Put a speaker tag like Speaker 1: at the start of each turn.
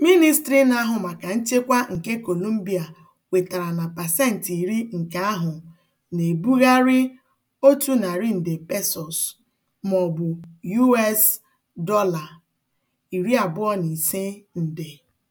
Speaker 1: ministri na-ahụ maka nchekwa nke Colombia wetara na pasentị iri nke ahụ na-ebugharị otu narị nde pesos (maọbụ US dọla
Speaker 2: nde).